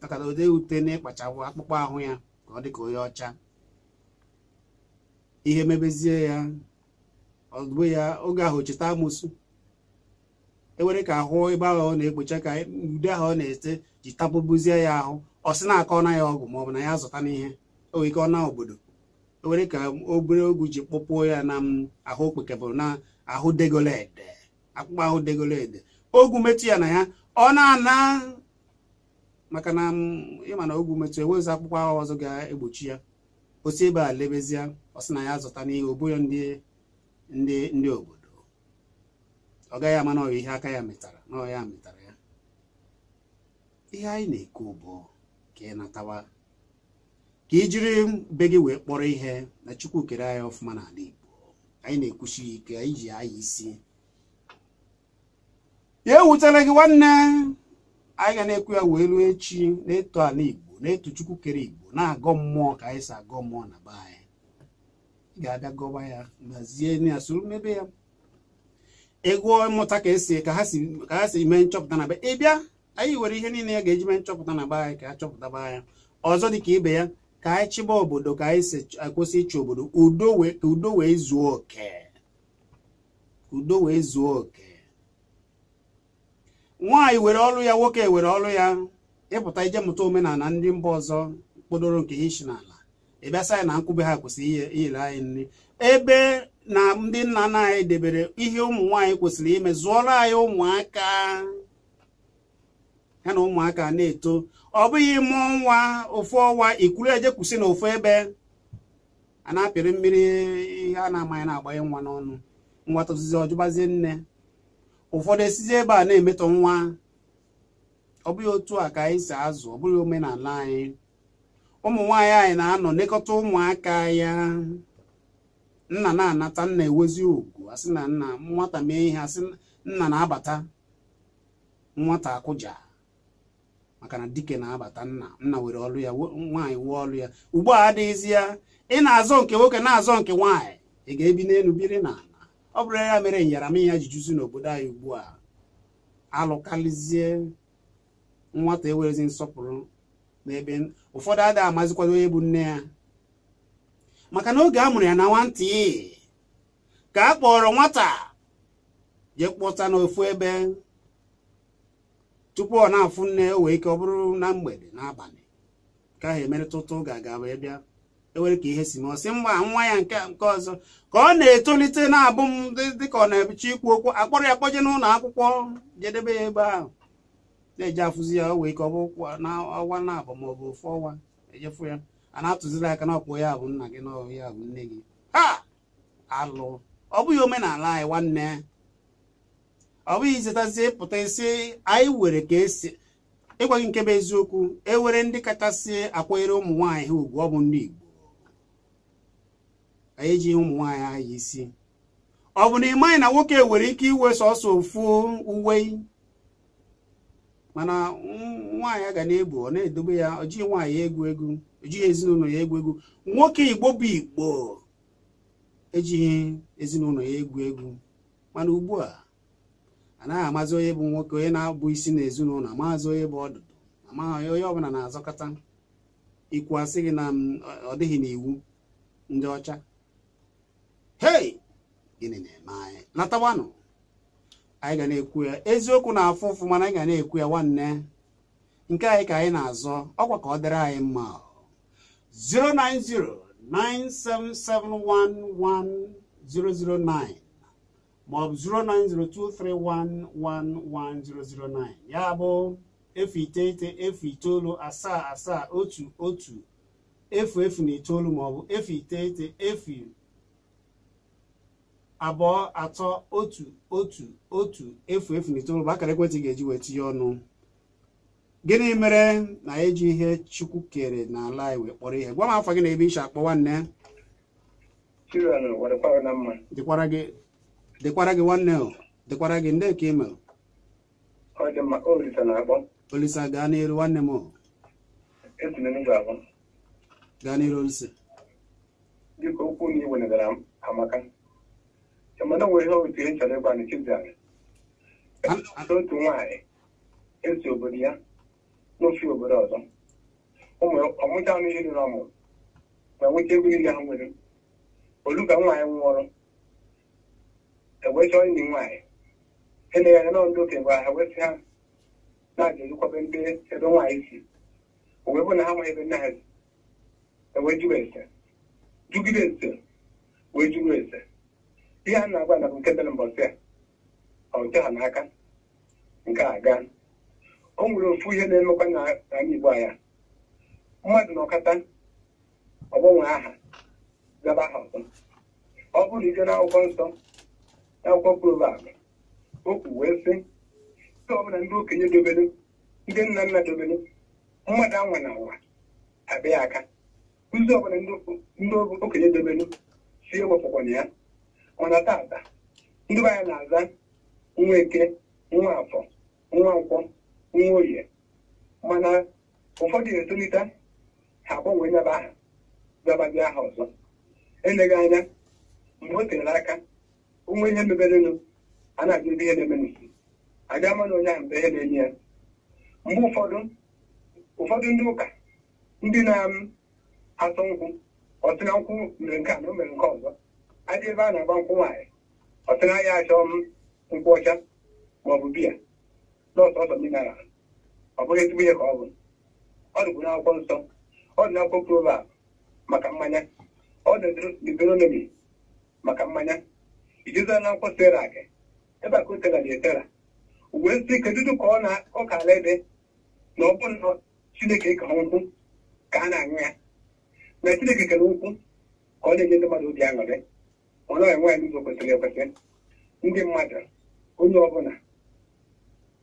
maka na odee ute na ịkpachapụ akpụkpọ ahụ ya ka ọ dị ka onye ọcha ihe mebezie ya ọgụ ya oge ahụ cheta amụsụ ewere ka ahụ ebe ahụ ọ na-ekpocha ka ude ahụ ọ na-ete ji tapụbuzie ya ahụ ọ sị na-akọ na ya ọgwụ maọbụ na ya zụta n'ihe o wee ike ọ na obodo ewere ka obere ogwu ji kpọpụọ ya na ahụ bụ na ahụ degolede akpụkpọ ahụ degolede ogwu metụ ya na ya ọ na-ana maka na ịma na ogwu metụ ewezi akwụkwọ agha ọzọ ga-egbochi ya osi ebe a lebezia ọsị na ya zụta n'ihe obodo ndị obodo ọ gaghị ama na ọ ihe aka ya metara na ọ ya metara ya ihe anyị na-ekwu bụ ka ị natawa ka i jiri be gị wee kpọrọ ihe na chukwu kere anyị ọfụma ala igbo anyị na-ekwuchi ike anyị ji anya isi ya ewutela gị nwanne anyị ga na-ekwu ya wee ruo echi na-eto ala igbo na-eto chukwu kere igbo na-agọ mmụọ ka anyị si agọ mmụọ na be anyị ga-abịa gọba ya gbazie ya soro mebe ya ego mmụta ka esi ka ha si mee nchọpụta na be ị bịa anyị were ihe niile ya ga-eji mee nchọpụta na be anyị ka a chọpụtaba anya ọzọ dịka ibe ya ka anyị chịba obodo ka anyị si akwụsị ịchị obodo udo wee zuo oke udo wee zuo oke nwaanyị were ọrụ ya nwoke were ọrụ ya ịpụta ije mụta omenala ndị mba ọzọ kpodoro nke ishi n'ala ịbịasa ya na nkwube ha kwesịrị iyere anyị nri ebe na ndị nna nna anyị debere ihe ụmụ nwaanyị kwesịrị ime zụọrọ anyị ụmụaka ya na ụmụaka na-eto ọ bụghị mụọ nwa ofu ọnwa ikuru eje kwụsị na ofu ebe a na-apịrị mmiri ihe a na-amaghị na-agbanye nwa n'ọnụ nwata ozizi ọjụbazie nne ụfọdụ esizi ebe a na-emetọ nwa ọ bụghị otu a ka anyị si azụ ọ bụghị omenala anyị ụmụ nwaanyị anyị na-anọ nekọta ụmụaka ya nna na-anata nna ewezi ugwu asị na nna nwata mee ihe asị nna na-abata nwata akụja maka na dike na-abata nna nna nwere ọlụ ya nwaanyị wee ọlụ ya ugbu a adịghịzi ya ị na-azọ nke nwoke na-azọ nke nwaanyị ị ga-ebi n'elu biri na ọ bụrụ ya mere nyaramịya ji juzi n'obodo anyị ugbu a alụkarịzie nwata ewerezi nsọpụrụ n'ebe ụfọdụ adịghị amazikwado onye bụ nne ya maka na oge a mụrụ ya na nwantị ka a kpọrọ nwata jee kpọta n'ofu ebe tupu ọ na-afụ nne o wee ike ọ bụrụ na mgbede n'abalị ka ahụ emerịta ụtụ ga-aga wee bịa ewere ka ihe si ma ọsị mgba nwa ya nke nke ọzọ ka ọ na-etolite na-abụ m dịka ọ na-ebicha ikwu okwu akpọrọ ya kpọje n'ụlọ akwụkwọ jedebe ya ebe ahụ na-eje afụzi ya o wee ka ọ bụ ọwa na-abụ ma ọ bụ ofu ọnwa ejefu ya a na-atụziri aka na ọkpụ ya bụ nna gị na ya bụ nne gị ha alụ ọ bụghị omenala anyị nwanne ọ bụghị izetazi pụta isi anyị were ka esi ịgwa gị nke bụ eziokwu ewere ndị kachasị akwanyere ụmụ nwaanyị ha ugwu ọ bụ ndị Igbo anyị ejighị ụmụ nwaanyị ahụ isi ọ bụ na ị maghị na nwoke nwere ike iwe sọsọ ofu uwe mana nwaanyị a ga na ebu ọ na-edobe ya ọ jighị nwaanyị egwu egwu ọ jighị ezinụlọ ya egwu egwu nwoke igbo bụ igbo ejighị ezinụlọ ya egwu egwu mana ugbu a anaghị amazi onye bụ nwoke onye na-abụ isi na ezinụlọ amaghịzi onye bụ ọdụdụ amaghị onye ọbụla na-azọkọta ikwu asị gị na ọ dịghị n'iwu ndị ọcha hei gịnị na-eme anyị anyị ga na-ekwu ya eziokwu na-afụ ụfụ mana anyị ga na-ekwu ya nwanne nke anyị ka anyị na-azọ ọkwa ka ọ dịrị anyị mma 09097711009 maọbụ 09023111009 ya bụ efu iteghete efu itoolu asaa asaa otu otu efu efu na itoolu maọbụ efu iteghete efu abụọ atọ otu otu otu efu efu na itoolu bụ akara ekwentị ga-eji wee tinye ọnụ gịnị mere na eji ihe chukwu kere n'ala anyị wee kpọrọ ihe gwa m afọ gị na ebe iche akpọ nwanne dịkwara gị nwanne dịkwara gị ndị ka ime olisa gaa n'elu nwanne m gaa n'elu olisa dịka okwu na iwenegara amaka mana nwere ihe otu e chọrọ ịgwa n'chibdara otu nwaanyị esi obodo ya n'ofe obodo ọzọ ọmụcha anụ ihe rụrụ ọmụrụ ma nweta ha nwere olu ka nwaanyị nwụọrọ nwaanyị na ebe nwaanyị si owee bụ na ha ese wee ese ihe a na-agwa na bụ nke dịrị mbọsị ọ nke ha n'aka nke a gaa o nwere ofu ihe na-emekwa na anyị Igbo anya mmadụ na ọkata ọgbanwe aha zaba aha ọzọ ọ bụrụ ije n'akwụkwọ nsọ n'akwụkwọ Proverbs okwu wee sị ndị ọbụla ndị okenye dobere ndị nna nna dobere mmadụ anwa na anwa abịa aka kụzi ọbụla ndị okenye dobere si ewepụkwana ya mana tata ndị be na-aza nwa eke nwa afọ nwa nkwọ nwa oye mana ụfọdụ na-etolite ha agbanwe nyaba aha babadị aha ọzọ eleghị anya mgbe o tere aka onwe ihe meberenụ a na-ajụ ihe na-eme aga mana onye ahụ mgbe ihe na-enye ya mgbe ụfọdụ ụfọdụ ndị ụka ndị na asọ nkwụ ọtụrụ nkwụ mere nke a na o mere nke ọzọ adị ebe a na-agba nkwụ nwaanyị ọtụrụ anya achọ nkwụ ọcha ma ọ bụ biya na ọsọsọ mineral ọ bụghị ezigbo ihe ka ọ bụ ọ dịbụ n'akwụkwọ nsọ ọ dị n'akwụkwọ provab maka mmanya ọ dị deuteronomy maka mmanya ijizụla na akwụkwọ serak ebe a ka o tera na etera uwe nsị kedudu ka ọ ka ala ede na ọ bụ nọ chineke ka nkwụ ka a na-aṅụ ya na chineke kere nkwụ ka ọ na-enye ndị mmadụ obi aṅụrị ọ naghị enwe n'ụzọ kwesịrị ekwesị ndị mmadụ onye ọbụla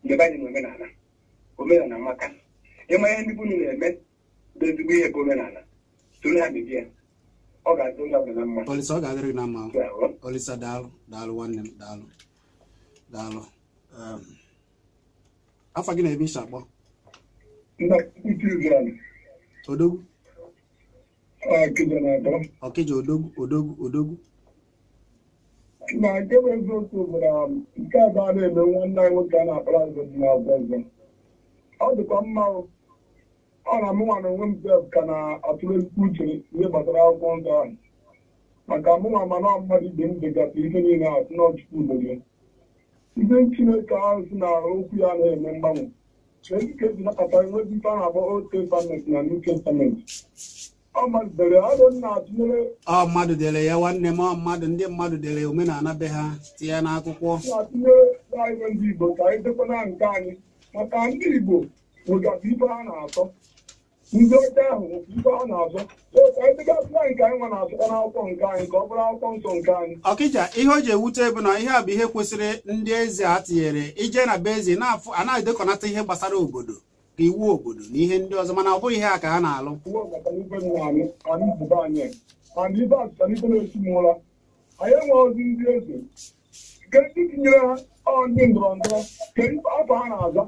mgbe anyị na omenala omenala maka ịma ihe ndị bunu na-eme bụ ezigbo ihe bụ omenala soro ha mebie ọ ga-adị onye ọbụla mma olisa ọ ga-adịrị na mma olisa daalụ daalụ nwanne m daalụ daalụ afọ gị na-eme isi akpọ odogwu ọkịja odogwu odogwu odogwu na um, nke bụ eziokwu bụ na nke abụọ na-eme nwanne anyị nwoke a na-akpara azụ dị n'azụ ọzọ ọ dịkwa mma ọ na mụnwa na onwe m sef ka na-atụle uche ihe gbasara akwụkwọ nsọ ahụ maka mụnwa mana mmadụ ibe m degasị ihe niile asị n'ọchịchị udo gị ihe chineke ahụ si na okwu ya na-eme mgbanwe nke si nakọta enweghị ife a na-akpọ old testament na new testament ọ mmadụ dere ya nwanne m mmadụ ndị mmadụ dere omenala be ha tinye ya n'akwụkwọ maka ndị igbo nwegasị ibe ha na-atọ ndị ọcha ahụ nwekwa ibe ha na-azọ ka anyị degasịla nke anyị nwa na-azụkwa n'akwụkwọ nke anyị ka ọ bụrụ akwụkwọ nsọ nke anyị ọkịja ihe o ji ewute bụ na ihe a bụ ihe kwesịrị ndị eze a tinyere ije na be eze na-afụ anaghị edekọnata ihe gbasara obodo iwu obodo na ihe ndị ọzọ mana ọ bụghị ihe a ka ha na-alụ anyị enweghịzi ndị eze nke ndị tinyere ha ndị ndọrọ ndọrọ nke afọ ha na-aza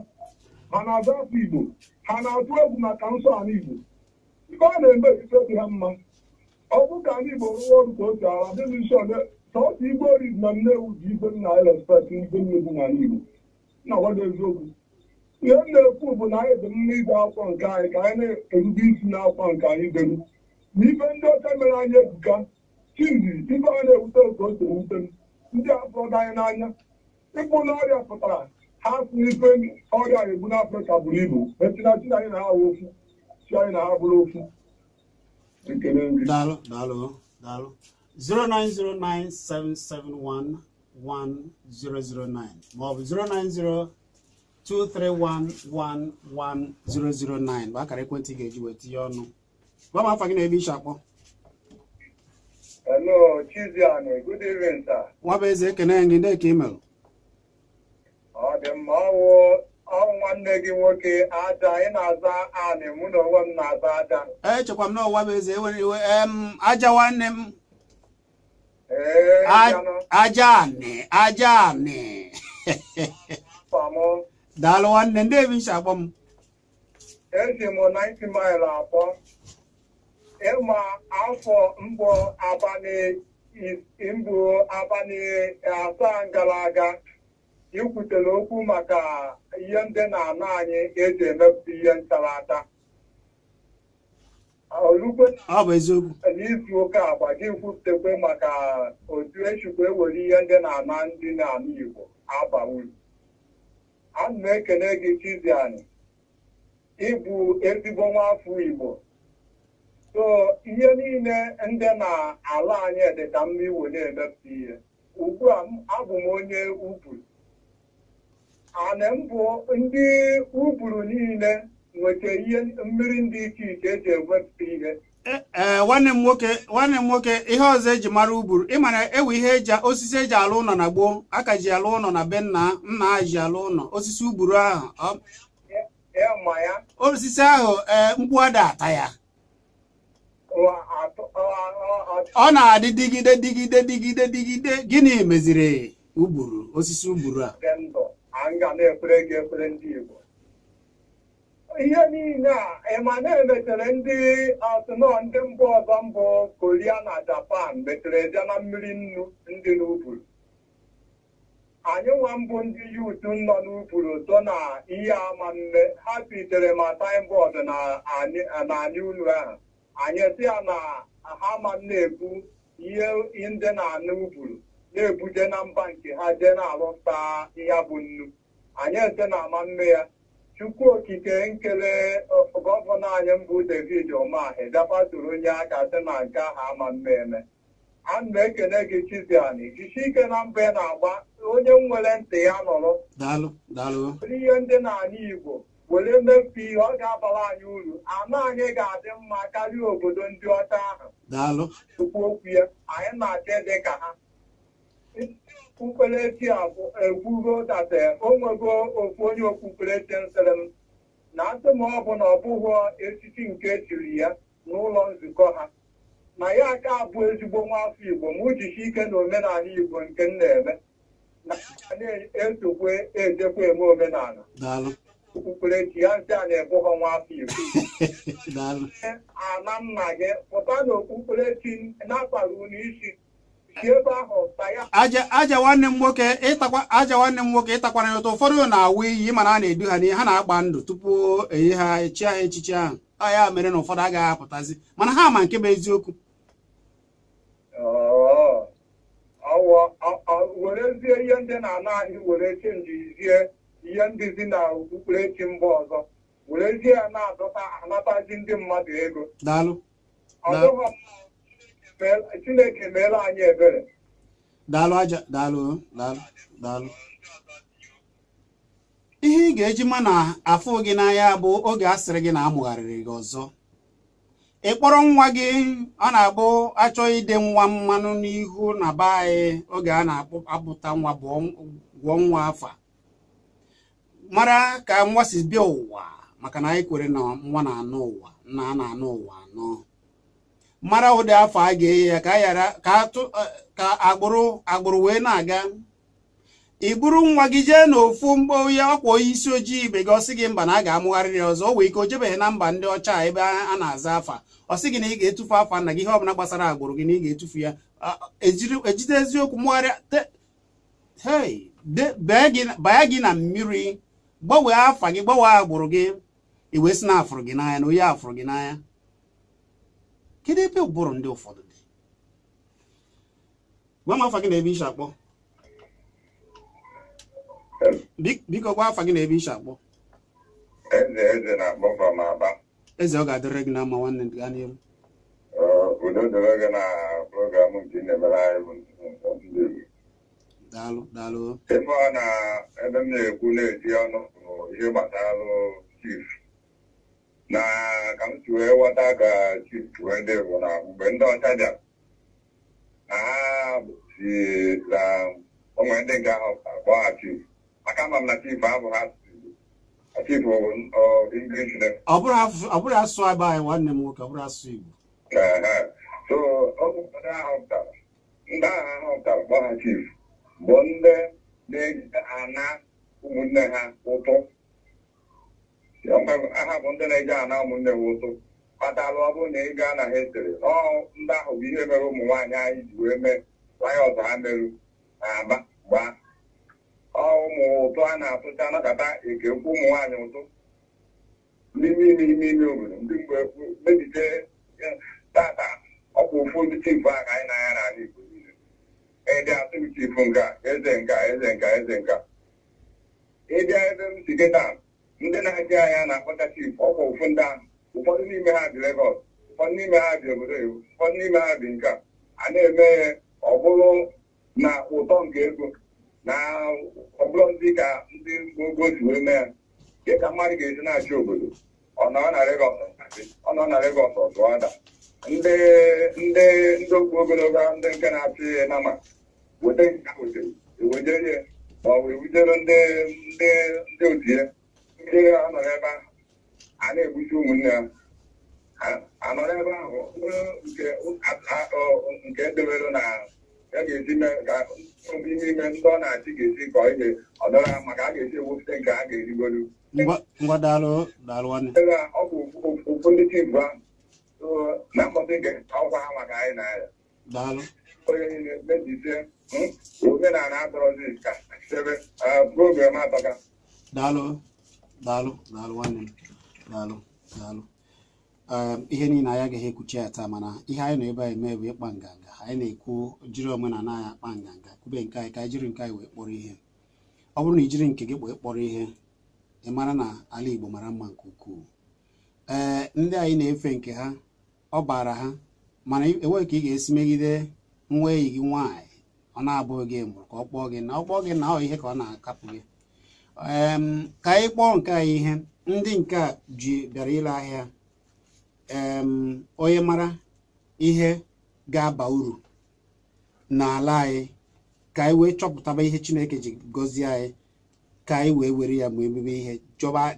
ha na-aza afọ igbo ha na-atụ egwu maka nsọ ala igbo ibe a na-eme ife dị ha mma ọ bụ ka ndị igbo rụọ ọrụ ka otu ala dị n'isi ole si igbo oriz na nnewu ji igwe nna anyị n'ala igbo na eziokwu ihe m na-ekwu bụ na anyị dị mma ibe akwa nke anyị ka anyị na-erube isi n'akwa nke anyị dere na ife ndị ọcha mere anyị ebuka chizi ibe a na-ewute otu o si ewute m ndị afọdụ anyị n'anya ịkpụ n'ọrịa pụtara ha si n'ife ọrịa egbu n'afrịka buru ibu etina chi anyị na ha ofu chi anyị na ha bụrụ ofu Daalụ, daalụ, daalụ. 09097711009 ma ọ bụ 090 231111009 bụ akara ekwentị ị ga-eji wee tinye ọnụ gwa m afa gị na-ebe iche akpọ Hello, Chiziani. Good evening, sir. Nwa bụ eze ekene gị ndị ka imel. Ọ dị mma ọwụ ọwụ nwanne gị nwoke aja ị na-aza anị mụ na onwe m na-aza aja. E, echekwa m na ọwa bụ eze ewere iwe aja nwanne m. Ee, aja anị aja anị. daalụ nwanne ndị ebi ncha akpọ m eji m 90 mil akpọ ịma afọ mbụ abalị mbụ abalị asaa gara aga ikwutere okwu maka ihe ndị na-ana anyị eji emepụta ihe ntarata n'izu ụka agba gị maka otu echukwa ewere ihe ndị na-ana ndị na-ana Igbo aba ana m ekene gị Chizzy ịbụ ezigbo nwaafọ Igbo so ihe niile ndị na-ala anyị dịka mma iwo na-emepụta ihe ugbua a abụ m onye uburu ana m bụ ndị uburu niile nweta ihe mmiri ndị iche iche eji ewepụta ihe E, e, nwanne m nwoke ihe ọzọ eji mara uburu ịmara ewe ihe eji osisi eji alụ ụlọ na gboo aka ji alụ ụlọ na be nna nna ji alụ ụlọ osisi uburu ahụ e, osisi ahụ mkpu ada ata ya ọ na-adị digide digide digide digide gịnị meziri uburu osisi uburu a ihe niile a emana emetere ndị asụnọ ndị mba ọzọ mbụ koria na japan metere bịa na mmiri nnu ndị n'uburu anyị nwa mbụ ndị yut nọ n'uburu so na ihe ama mme ha pitere ma taịmbọọdụ na anyị unu ahụ anyị si ya na ha ma na-ebu ihe ndị na anụ uburu na-ebuje na mba nke ha jee na-alụta ya bụ nnu anyị ete na ama mme ya Chukwu okike nkele gọvanọ anyị mbụ David omahi dabaturu onye aka sị na nke ahụ ama mmemme ana m ekele gị Chiziani jisi ike na mba ị na-agba onye nwere ntị ya nọrọ were ihe ndị na anya Igbo were mmefu ihe ọ ga-abara anyị uru anụ anyị ga-adị mma karịa obodo ndị ọcha ahụ Chukwu okwu ya anyị na-achọ dị ka ha okpukperechi a ekwugo data onwego ofu onye okpukperechi nsịrị m na atụm ọ ọbụ na ọ bụghị echichi nke echiri ya n'ụlọ nzukọ ha na ya aka abụ ezigbo nwafọ igbo ma ujichi ike na omenala igbo nke m na-eme na esokwe ejekwa eme omenala okpukperechi ya nsị a na-ebughọ nwafọ igbo ana nna gị pụta na okpukperechi na-akpara unu isi aja nwanne m nwoke ịtakwa aja nwanne m nwoke ịtakwara ụtọ ụfọdụ na-awụ iyi mana a na-edu ha n'ihe ha na-agba ndụ tupu eyi ha echi ha echichi ahụ ya mere na ụfọdụ agaghị apụtazi mana ha ma nke bụ eziokwu ihe ndị na okpukperechi mba chineke meela anyị ebere daalụ aja daalụ daalụ daalụ ihe ị ga-eji ma na afụ gị n'anya bụ oge a sịrị gị na amụgharịrị gị ọzọ ị kpọrọ nwa gị ọ na-abụ achọghị ide nwa mmanụ n'ihu na be anyị oge a na-apụta nwa gwụọ nwa afa mara ka nwa si bịa ụwa maka na anyị kwere na nwa na-anụ ụwa nna a na-anụ ụwa anọ mara ụdị afọ a ga eyi ya ka ghara eh, ka agbụrụ agbụrụ wee na-aga ị bụrụ nwa gị jee n'ofu mgbe onye ọkwa onye isi ojii ibe gị ọsị gị mba na a ga-amụgharị ya ọzọ o wee ike o jebeghị na mba ndị ọcha ebe a na-aza afa ọ sị gị na ị ga-etufu afa nna gị ihe ọbụla gbasara agbụrụ gị na ị ga-etufu ya ah, ejide eziokwu mụgharịa baa gị na mmiri gbanwee afa gị gbanwee agbụrụ gị i wee sị na afụrụ gị n'anya na onye afụrụ gị n'anya kedu ebe ụbụrụ ndị ụfọdụ dị gwa m afa gị na ebe ishi akpọ biko gwa afa gị na ebe ishi akpọ eze ọ ga-adịrị gị na mma nwanne gị gaa n'ihu udo dịrị gị na program nke ị na-emere anyị bụ daalụ daalụ ebe ọ na ebe m na-ekwu na-eti ọnụ bụ ihe gbatalụ chief na ka m si wee ghọta ka chiwedị bụ na mgbe ndị ọcha bịara na ha si na onwe ndị nga ahụ ha chief maka ama m na chief abụ ha chief English ọ bụrụ asụsụ agba anyị nwanne m nwoke ọ bụrụ asụsụ Igbo so oge ụfọdụ ahụ pụtara ndị agha ahụ pụtara kpọgha chief bụ ndị na-ejide ana ụmụnne ha ụtụ aha bụ ndị na-eje ana ụmụnne m ụtụ kpatalụ ọ bụrụ na ị gaa na ha etere n'ọụ ndị ahụ bụ ihe mere ụmụ nwaanyị anyị ji wee mee nwanyị ọzọ ha merụ na aba gbaa ụmụ ụtụ a na-atụcha anakọta eke ụmụ nwaanyị ụtụ n'ime ime ime ime obodo ndị mgbe mebite tata ọkwa ofu ndị chifu a ka anyị na-anya n'ala Igbo niile ịdị atụ chifu nka eze nka eze nka eze nka ịbịa ebe m si kịta ndị na-eje anya na-akpọcha chif ọkwa ụfụ ndị ahụ ụfọdụ n'ime ha dị Lagos ụfọdụ n'ime ha dị obodo iwu ụfọdụ n'ime ha dị nka a na-eme ọ bụrụ na ụtọ nke ego na ọ bụrụ ndị ka ndị ogo si wee mee ya nke ka mmadụ ga-eji na-achị obodo ọ nọ na Lagos ọ nọ na Lagos ndị ndị ndị okwu ogologo ndị nke na-achị nama weta nke ha wetere ewejerie ma ọ bụ ewujere ndị ndị ndị otie ndị anọ n'ebe ahụ a na-egbusi ụmụnne ha anọ n'ebe ahụ nke ndebelụ e na ya ga-esi mee ka ime ndị ọ na-achị ga-esi ọ ihe ọ maka a ga-esi ewepụta nke a ga-erigolu ngwa daalụ daalụ nwanne ọ bụ okwu ndị ahụ na mkpọtụ nke ọgwa ha maka anyị na ya onye niile mejisie hmm, omenala adọrọzi ka sebe uh, program atọka daalụ daalụ daalụ nwanne m daalụ daalụ ihe niile anyị agaghị ekwuchi ya taa mana ihe anyị nọ ebe anyị mee bụ ịkpa nganga anyị na-ekwu jiri omenala anyị akpa nganga kube nke anyị ka anyị jiri nke anyị wee kpọrọ ihe ọ bụrụ na ijiri nke gị kpọọ kpọrọ ihe ị mara na ala Igbo mara mma nke ukwuu ee ndị anyị na-efe nke ha ọ baara ha mana enweghị ka ị ga-esi megide nwa eyi gị nwaanyị ọ na-abụghị gị mụrụ ka ọ kpọọ gị na ọ kpọọ gị na ọ ihe ka ọ na-akapụ gị ka anyị kpọọ nke a ihe ndị nke a ji bịara ile ahịa onye mara ihe ga-aba uru n'ala anyị ka anyị wee chọpụtaba ihe Chineke ji gọzie anyị ka anyị wee were ya ma ebube ihe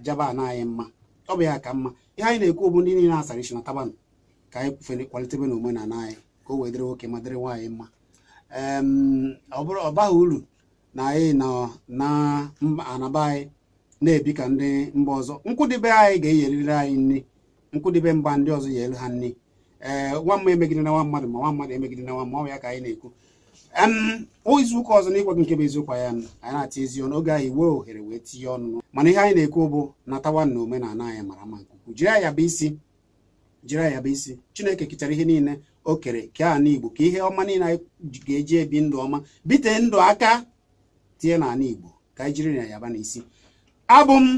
jaba na anyị mma ọ bụ ya ka mma ihe anyị na-ekwu bụ ndị niile asara isi na tabanụ ka anyị kwufere kwalitebe na omenala anyị ka o wee dịrị nwoke ma dịrị nwaanyị mma ọ ọbaghị uru na anyị nọ na anaba anyị na-ebi ka ndị mba ọzọ nkwụdịbe anyị ga-eyeriri anyị nri nkwụdịbe mba ndị ọzọ yere ha nri ee nwa mma emegide na nwa mmadụ ma nwa mmadụ emegide na nwa mma ya ka anyị na-ekwu izu ụka ọzọ na nke bụ eziokwu ya anyị na-ata ezi ọnụ oge anyị wee ohere wee tinye ọnụ mana ihe anyị na-ekwu bụ natawa na omenala anyị mara mma nke ukwuu jiri anya bụ isi jiri anya bụ isi chineke kechara ihe niile o kere kee ala igbo ka ihe ọma niile anyị ga-eji ebi ndụ ọma bite ndụ aka na n'ala Igbo ka anyị jiri na yaba n'isi abụ m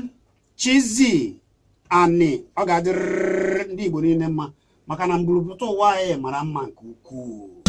Chizzy Ani ọ ga-adịrịrị ndị Igbo niile mma maka na mburuputa ụwa anyị mara mma nke ukwuu